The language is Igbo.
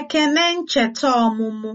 Ekene ncheta ọmụmụ